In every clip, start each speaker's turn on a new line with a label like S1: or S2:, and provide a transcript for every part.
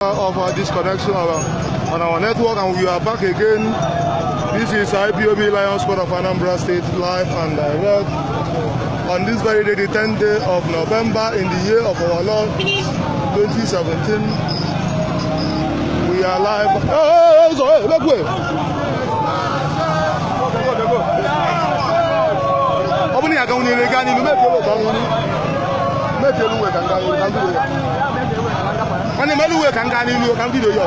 S1: of our disconnection uh, on our network and we are back again. This is IPOB Lions Squad of Anambra State live and direct on this very day, the 10th day of November in the year of our Lord 2017. We are live. Hey, hey, hey, make way. Open your account in the Ghana, make your way. Make your way nwanne m eluwe ka m gaa n'ilu ka m bido ya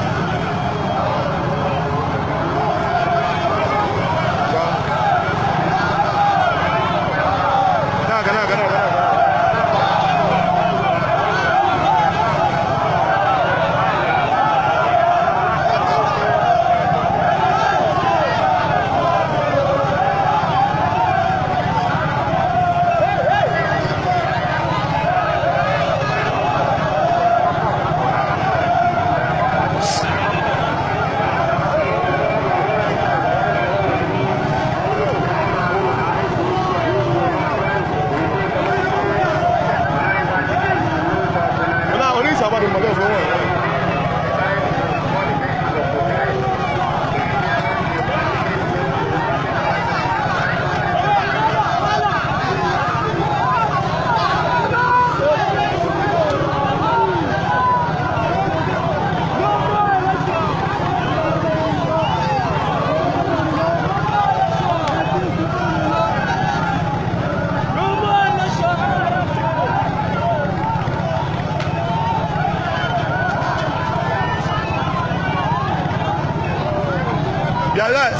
S1: right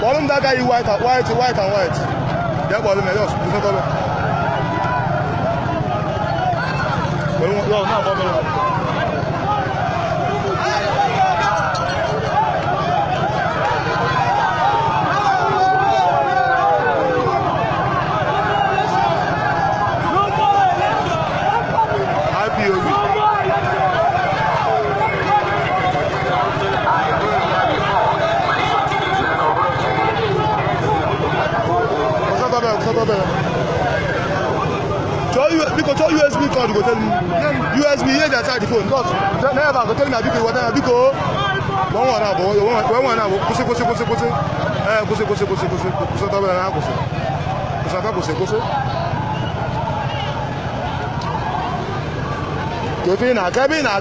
S1: bọ́ọ̀lù ń dága yìí white and white white and white jẹ́ bọ́ọ̀lù mẹ́rin ọ̀sùn tó fẹ́ tọ́lọ́. pẹ̀lú yọ̀ọ̀ no, no. mẹ́rin. biko chọọ usb cord go tell me usb ihe dị aside the phone because never go tell me na biko iwata wọ́n wọ̀ náà bọ̀ wọ́n wọ̀ náà bọ̀ kwụsị kwụsị kwụsị kwụsị ee kwụsị kwụsị kwụsị kwụsị kwụsị ọtọ náà kwụsị kwụsị ọtọ kwụsị kwụsị. kò fi na-aga ebe ị na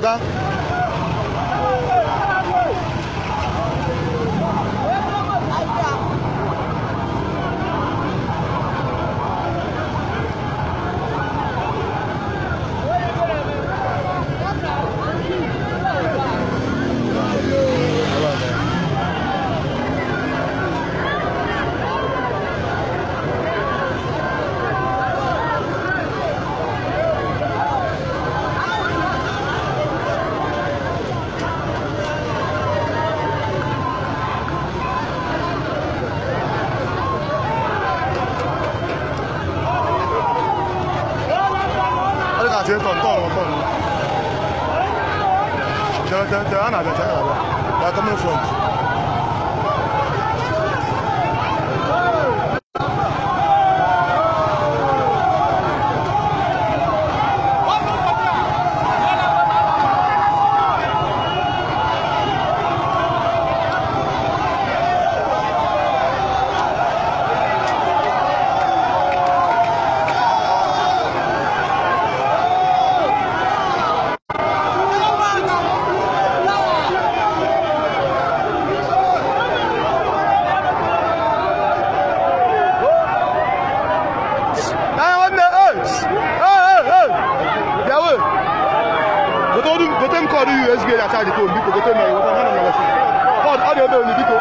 S1: they're, they're, they're, they're coming front. gote m kọọrọ ihe ezigbo eri ata dị ka obi biko gote m ya iweta mana m ya wesịrị ọ dị ebe onye biko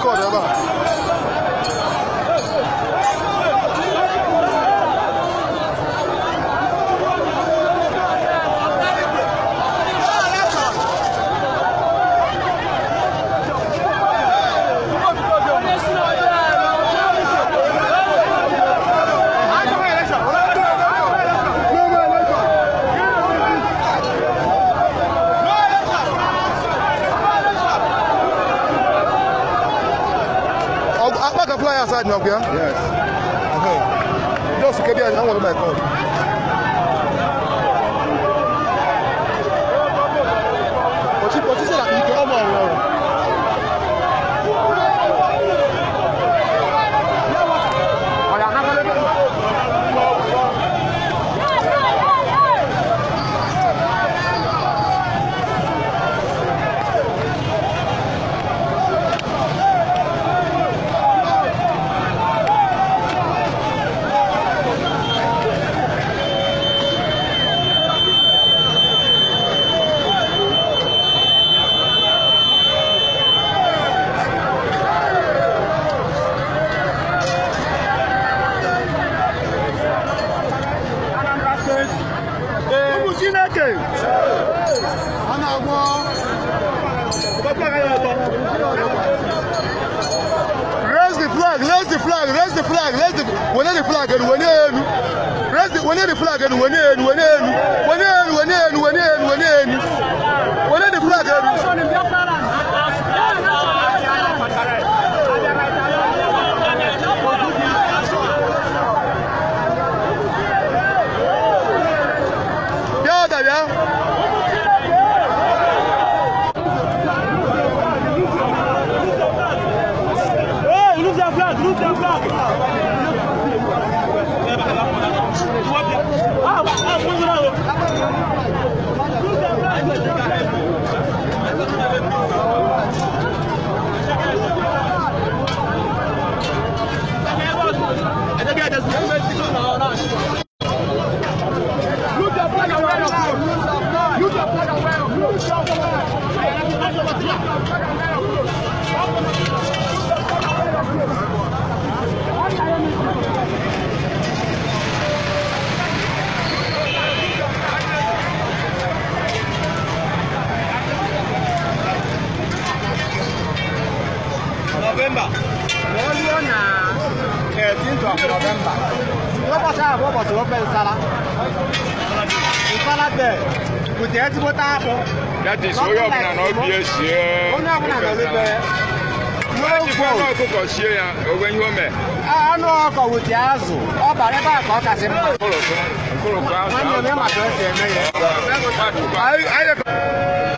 S1: 特别的狠 outside Nyokia? Yes. Okay. Just keep here, I want to buy Raise the flag, raise the flag, raise the, wene the flag, and wene enu. Raise the, wene the flag, and wene enu, wene enu. 老板吧，我做哪？哎，听说老板吧，我 b o s 我 boss 我 b o s good day ti bota apo that is oyo ọbụla na obi esi onye ọbụla na obibe n'ogo ọkụkọ sie ya onwe o mee anụ ọkọ wute azụ ọ bara ebe a ka ọ kasị mma